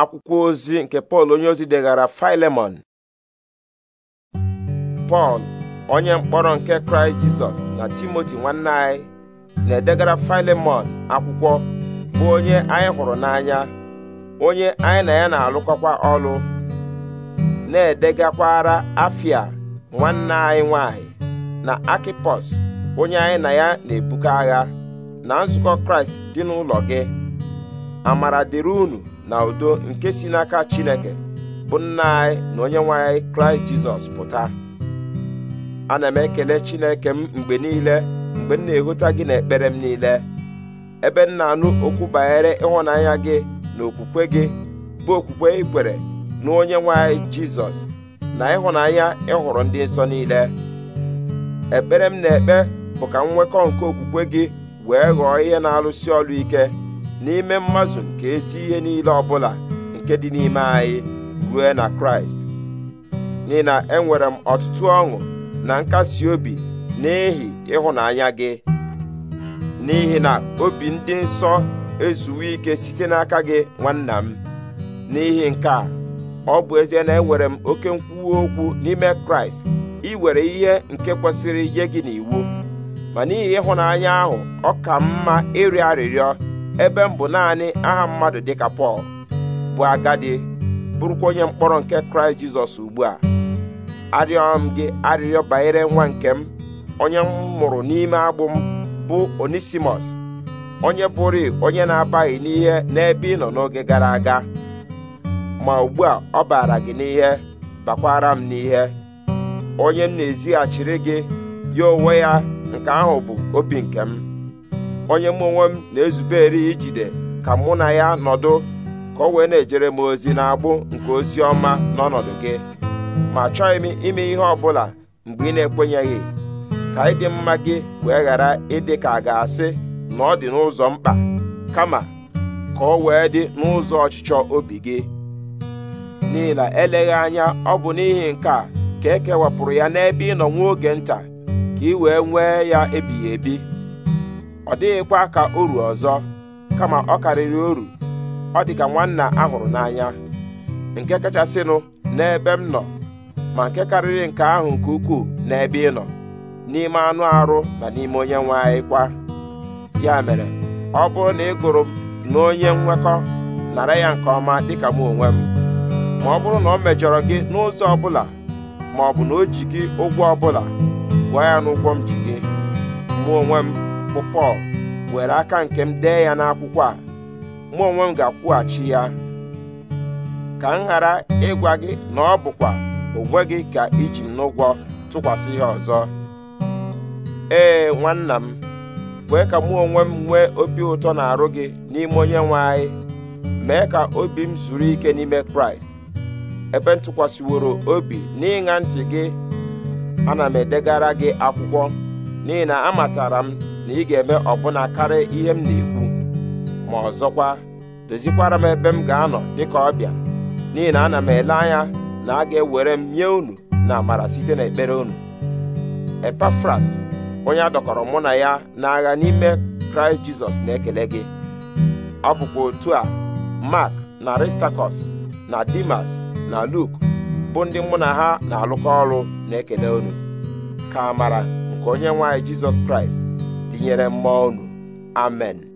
akwụkwọ ozi nke pọl onye ozi degara filemon pọl onye mkpọrọ nke kraịst jizọs na timoti nwanne anyị na-edegara filemon akwụkwọ bụ onye anyị hụrụ n'anya onye anyị na ya na-alụkọkwa ọrụ na-edegakwara afia nwanne anyị nwanyị na akipos onye anyị na ya na-ebuga agha na nzukọ kraịst dị n'ụlọ gị amara dịrị unu na udo nke si n'aka chineke bụ nna anyị na onye nwe kraịst jizọs pụta ana m ekele chineke m mgbe niile mgbe m na-ehụta gị n'ekpere m niile ebe m na-anụ okwu banyere ịhụnanya gị na okwukwe gị bụ okwukwe ikwere na onye nwe anyị jizọs na ịhụnanya ịhụrụ ndị nsọ niile ekpere m na-ekpe bụ ka m nwekọ nke okwukwe gị wee ghọọ ihe na-alụsi ọrụ ike n'ime mmadụ nke ezi ihe niile ọbụla nke dị n'ime anyị ruo na kraịst n'ihi na enwere m ọtụtụ ọṅụ na nkasi obi n'ihi ịhụnanya gị n'ihi na obi ndị nsọ ezuwe ike site n'aka gị nwanna m n'ihi nke a ọ bụ ezie na enwere m oke nkwuwe okwu n'ime kraịst iwere ihe nke kwesịrị nye gị n'iwu ma n'ihi ịhụnanya ahụ ọ ka mma ịrịọ arịrịọ ebe m bụ naanị aha mmadụ dịka pọl bụ agadi bụrụkwa onye mkpọrọ nke kraịst jizọs ugbu a arịọ m gị arịrịọ banyere nwa nke m onye m mụrụ n'ime agbụ m bụ onisimus onye bụrụ onye na-abaghị n'ihe n'ebe ị nọ n'oge gara aga ma ugbu a ọ baara gị n'ihe bakwara m n'ihe onye m na-ezighachiri gị ya onwe ya nke ahụ bụ obi nke m onye mụ onwe m na-ezubere ijide ka mụ na ya nọdụ ka o wee na-ejere m ozi na-agbụ nke ozi ọma n'ọnọdụ gị ma chọghị m ime ihe ọ bụla mgbe ị na-ekwenyeghị ka ịdị mma gị wee ghara ịdị ka a ga-asị na ọ dị n'ụzọ mkpa kama ka ọ wee dị n'ụzọ ọchịchọ obi gị n'ihi na eleghị anya ọ bụ n'ihi nke a ka e kewapụrụ ya n'ebe ị nọ nwa oge nta ka ị wee nwee ya ebighị ebi ọ dịghịkwa ka oru ọzọ kama ọ karịrị oru ọ dị ka nwanna ahụrụ n'anya nke kachasịnụ n'ebe m nọ ma nke karịrị nke ahụ nke ukwuu n'ebe ị nọ n'ime anụ arụ na n'ime onye nwe anyị kwa ya mere ọ bụrụ na ị gụrụ m na onye nwekọ nara ya nke ọma dịka m onwe m ma ọ bụrụ na ọ mejọrọ gị n'ụzọ ọbụla ma ọ bụ na o ji gị ụgwọ ọbụla gwa ya n'ụgwọ m ji gị mụ onwe m bụ pọl were aka nke m dee ya n'akwụkwọ a mụ onwe m ga-akwụghachi ya ka m ghara ịgwa gị na ọ bụkwa onwe gị ka iji m n'ụgwọ tụkwasị ya ọzọ ee nwanna m kwee ka mụ onwe m nwee obi ụtọ na-arụ gị n'ime onye nwe anyị mee ka obi m zuru ike n'ime kraịst ebe ntụkwasịworo obi n'ịṅa ntị gị ana m edegara gị akwụkwọ n'ihi na amatara m na ị ga-eme ọbụna karịa ihe m na-ekwu ma ọzọkwa dozikwara m ebe m ga-anọ dịka ọbịa n'ihi na ana m ele anya na a ga-ewere m nye unu na amara site na ekpere unu epafras onye a dọkọrọ mụ na ya n'agha n'ime kraịst jizọs na-ekele gị ọ otu a mark na aristakọs na dimas na luk bụ ndị mụ na ha na-alụkọ ọrụ na-ekele unu ka amara nke onye nwanyị jizọs kraịst gọziere mmụọ unu amen